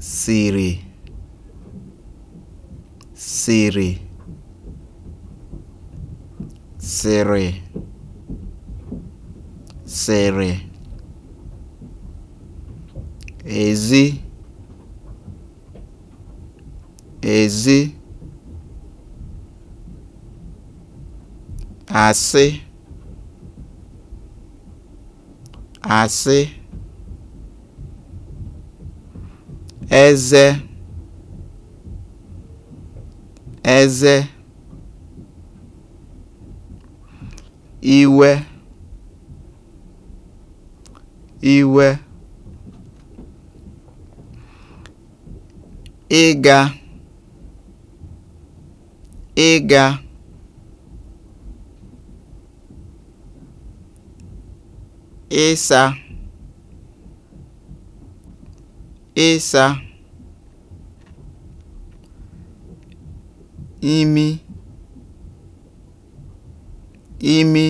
siri, siri, siri, siri, ezi, ezi, asị àsị eze eze iwe iwe ịga ịga ịsa ịsa imi imi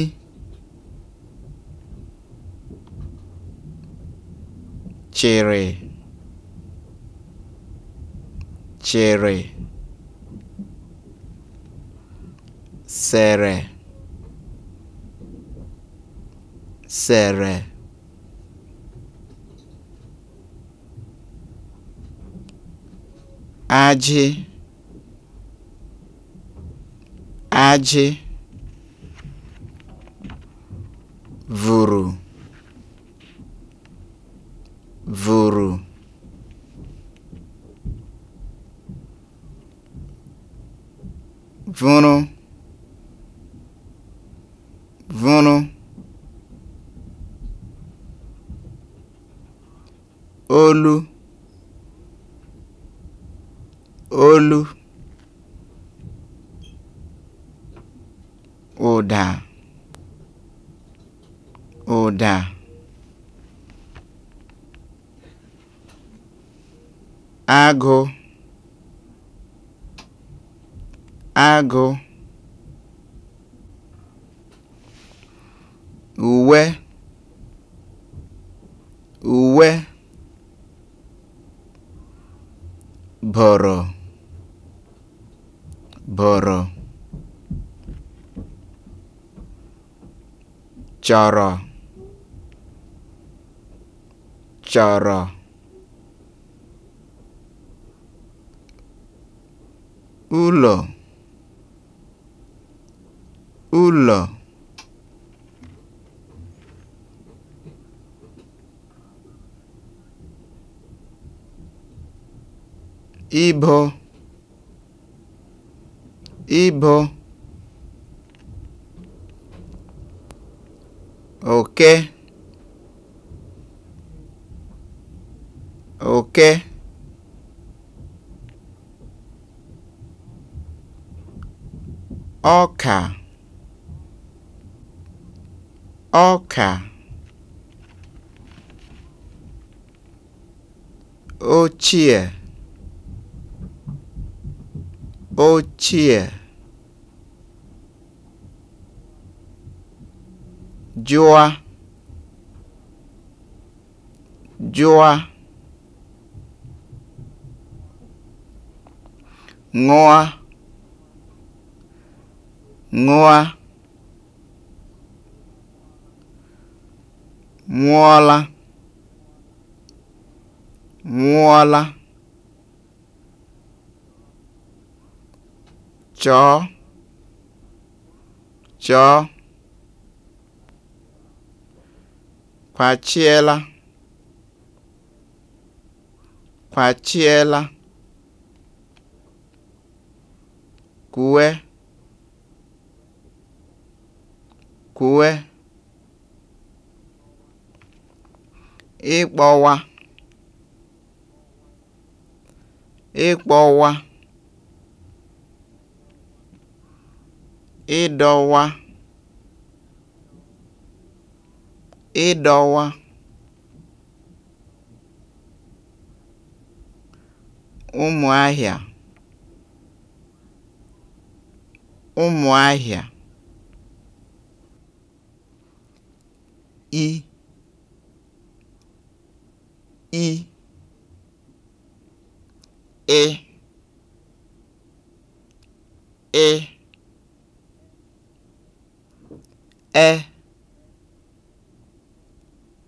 chịrị chịrị sere sere ajị ajị vuru, vuru, vunu, vunu, olu olu ụda ụda agụ agụ uwe uwe bọrọ bụrụ chọrọ chọrọ ụlọ ụlọ ibo Ibo oke oke ọka ọka ochie ochie jụwa jụwa ṅụa ṅụa mụọla mụọla chọọ chọọ kwachiela kwachiela kùwe kùwe ịkpọwa ịkpọwa ịdọwa ịdọwa ụmụahịa ụmụahịa i i e ị e e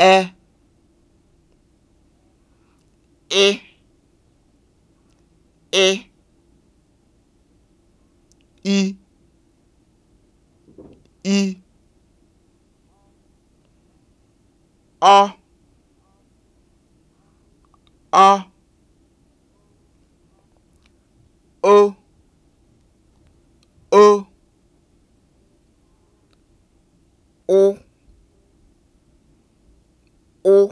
e e e i i ọ ọ o o o ụ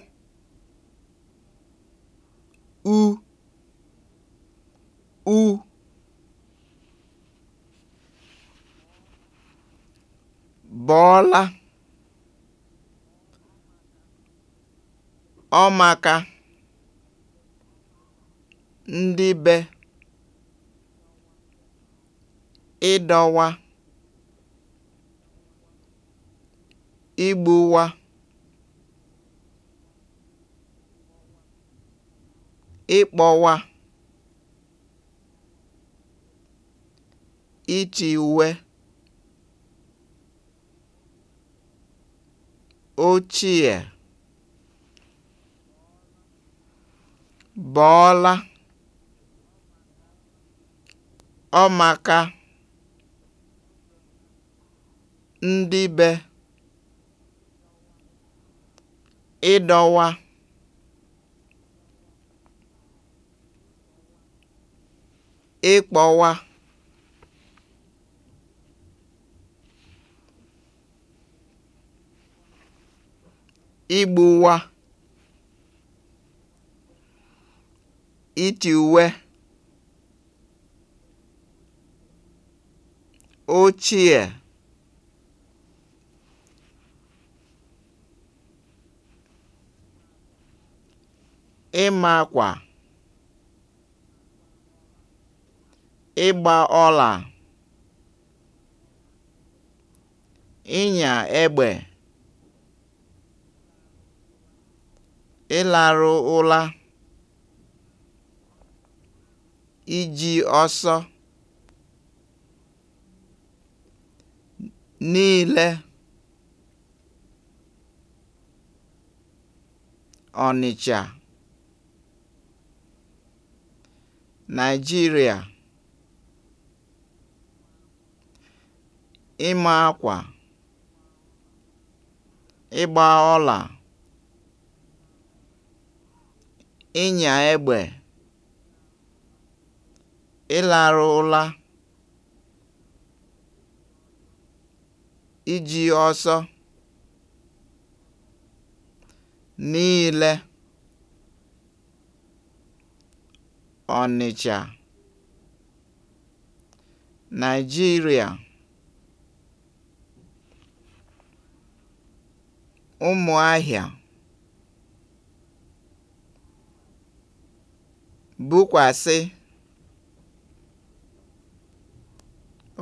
u u bọ̀ọla ọ ndị be ịdọwa igbuwa ịkpọwa iti uwe ochie bọọla ọmaka ndị be ịdọwa ịkpọwa igbuwa iti uwe ochie ịmakwa ịgba ọla ịnya egbe ịlarụ ụla iji ọsọ niile Ọnịcha Naijiria. ịma akwa, ịgba ọla, ịnya egbe, ịlarụ ụla, iji ọsọ, niile, Onitsha, Naijiria. Ụmụahịa bukwasi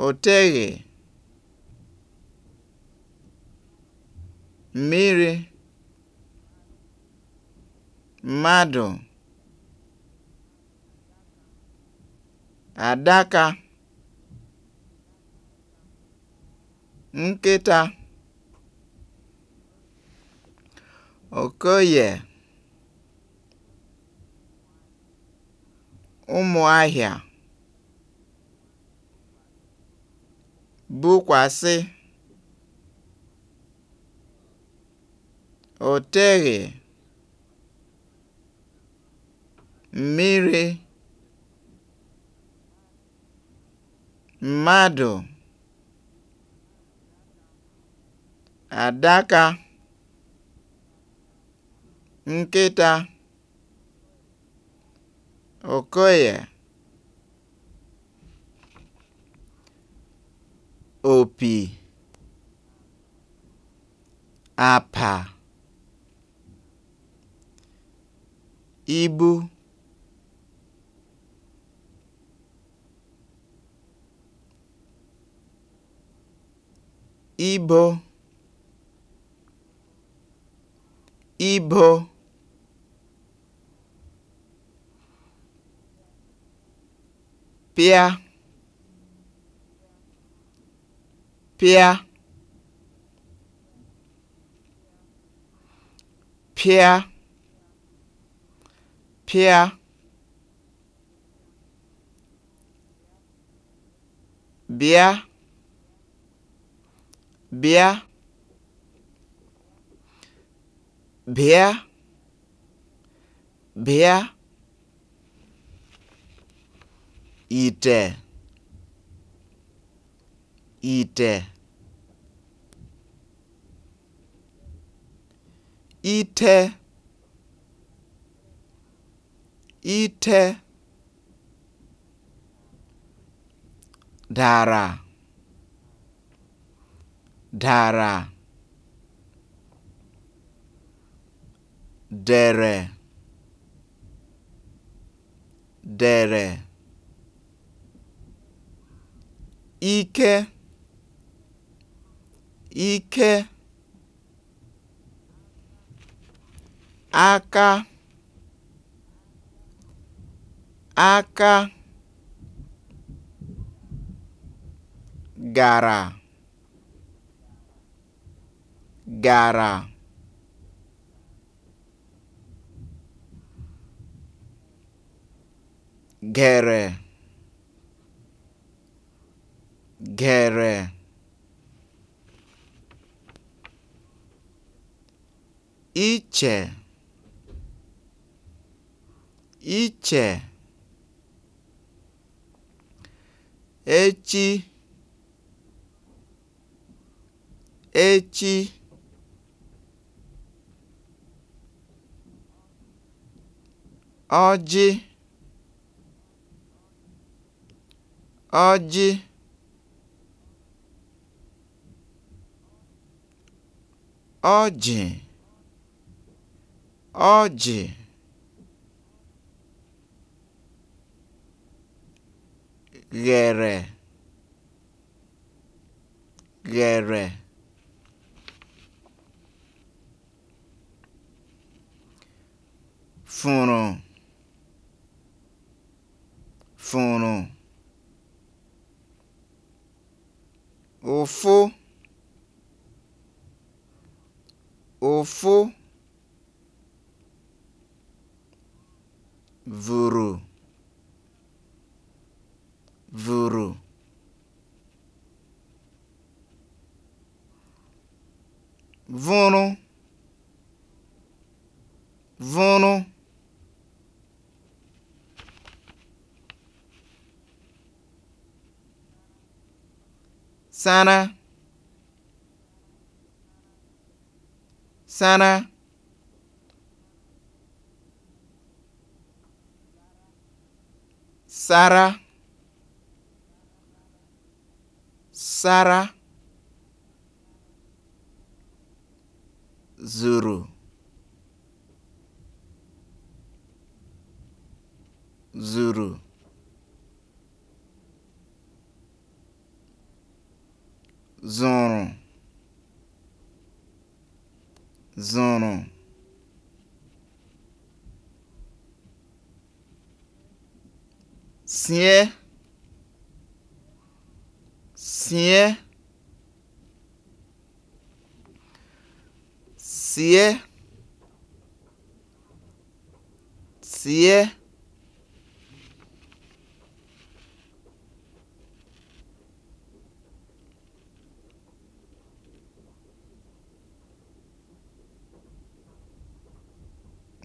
òteghè mmiri mmadụ adaka nkịta Okoye Ụmụahịa bukwasị o teghị mmiri mmadụ adaka nkịta okoye opi apa ibu ibo ibo pịa pịa pịa pịa bịa bịa bịa bịa ite, ite, ite ite dara dara dere dere ike ike aka aka gara gara gere gere iche iche echi echi ọjị ọjị ọjị ọjị ghere ghere fụrụ fụrụ ụfụ ụfụ vụrụ vụrụ vụrụ vụrụ sara Sara. Sara. Sara. Zuru. Zuru. zụ̀rụ̀ sie sie sie sie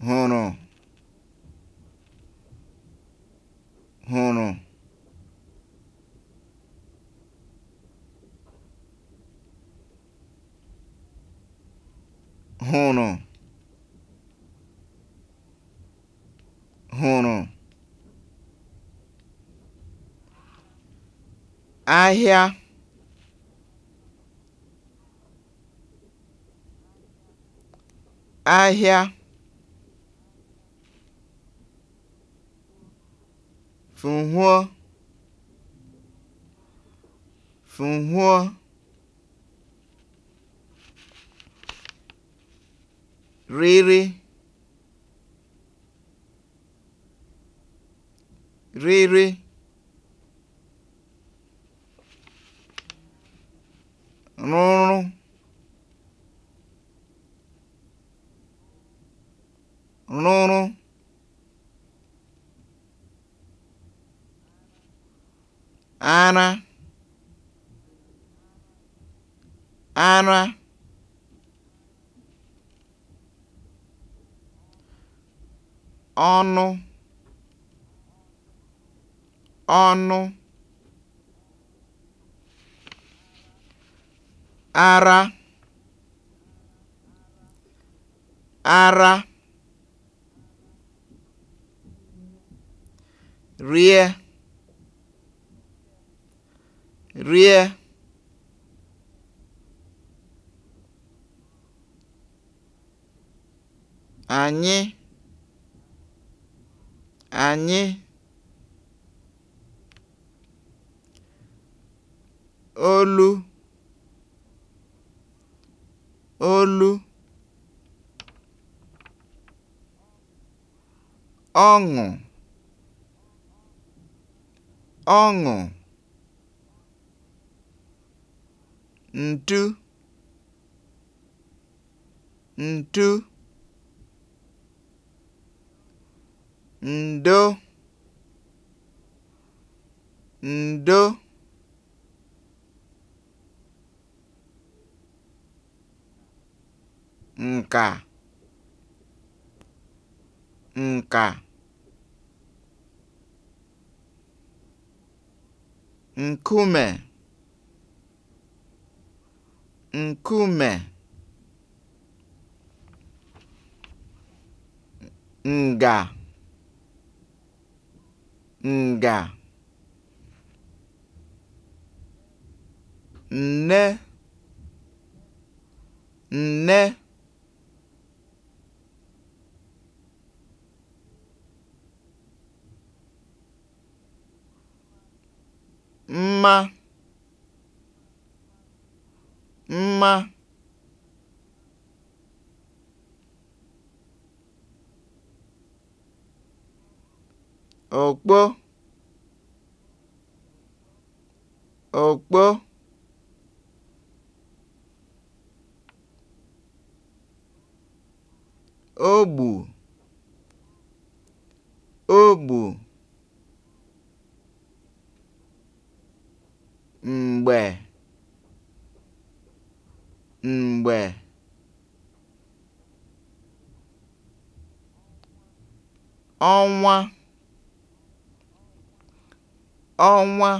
hụrụ hụrụ hụrụ hụrụ ahịa ahịa fụ̀hụọ fụ̀hụọ riri, riri. ọnụ ọnụ ara ara rie rie anyị anyị olu olu ọṅụ ọṅụ ntu ntu ǹdo ǹdo ǹkà ǹkà nkume nkume nga nga" nne nne mma mma òkpó òkpó ogbù ogbù m̀gbè m̀gbè ọnwa ọnwa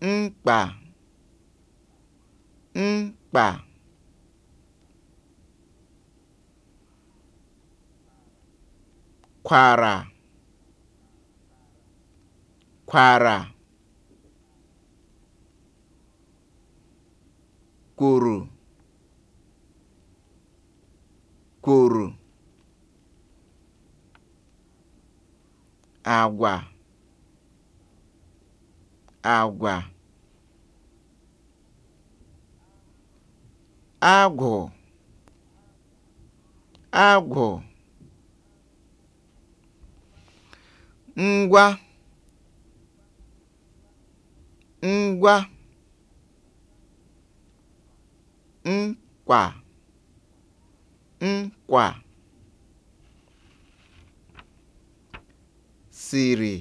mkpa mkpa kwara kwara kwuru kwuru. Agwa agwa agwụ agwụ ngwa ngwa nkwa nkwa siri,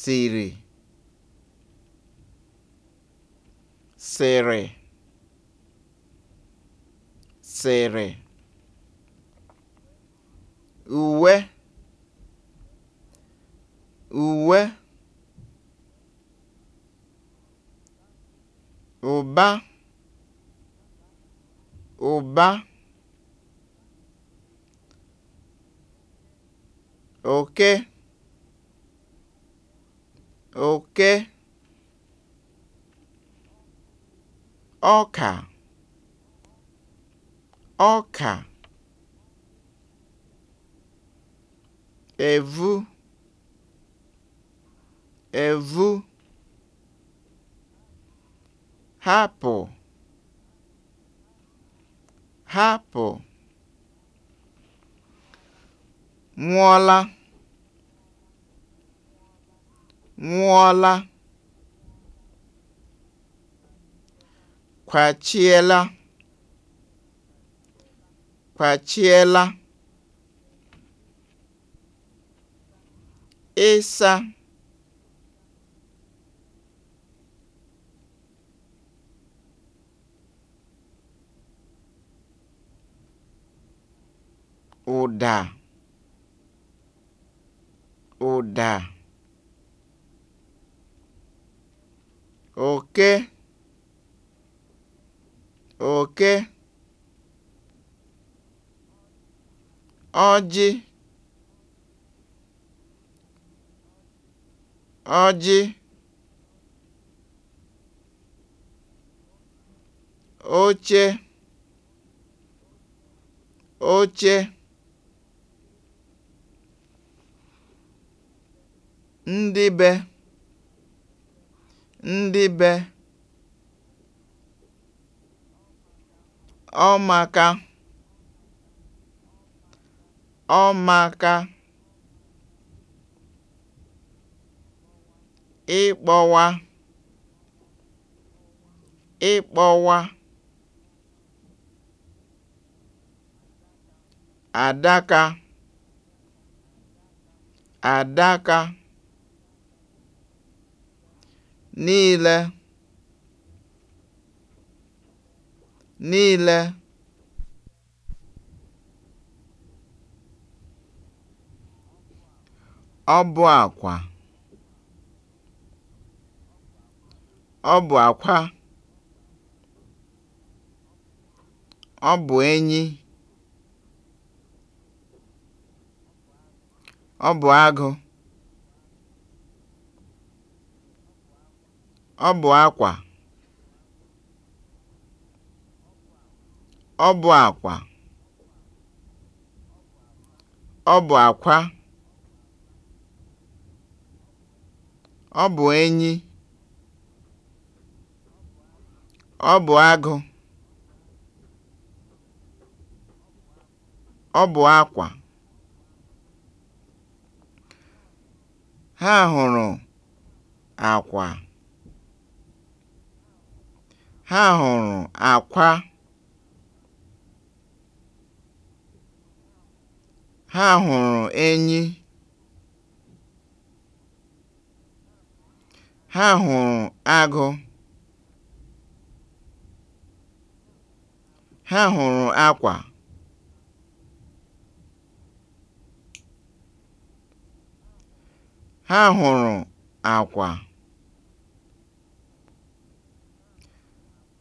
siri, sị̀rị̀ sere. uwe uwe ụba ụba oke oke ọka ọka evu evu hapụ hapụ nwụọla nwụọla kwachiela kwachiela ịsa ụda Ụda oke oke ọjị ọjị oche oche ndị be ndị be ọmaka ọmaka ịkpọwa ịkpọwa adaka adaka niile niile ọ bụ akwa ọ bụ akwa ọ bụ enyi ọ bụ agụ Ọ bụ akwa. Ọ bụ enyi. Ọ bụ agụ. Ọ bụ akwa. Ha hụrụ akwa. Ha hụrụ akwa. Ha hụrụ enyi. Ha hụrụ agụ. Ha hụrụ akwa. Ha hụrụ akwa.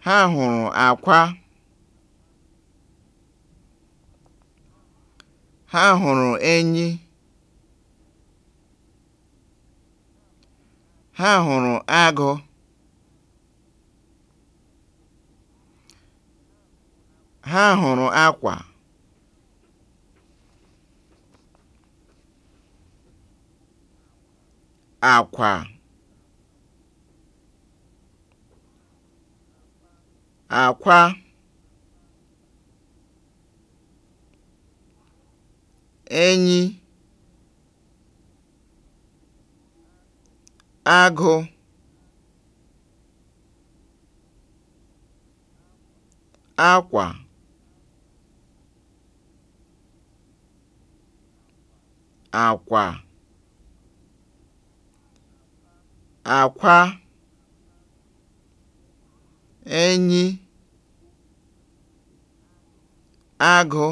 ha hụrụ akwa ha hụrụ enyi ha hụrụ agụ ha hụrụ akwa akwa Akwa, enyi agụ akwa, àkwà akwa, enyi agụ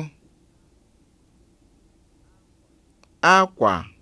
akwa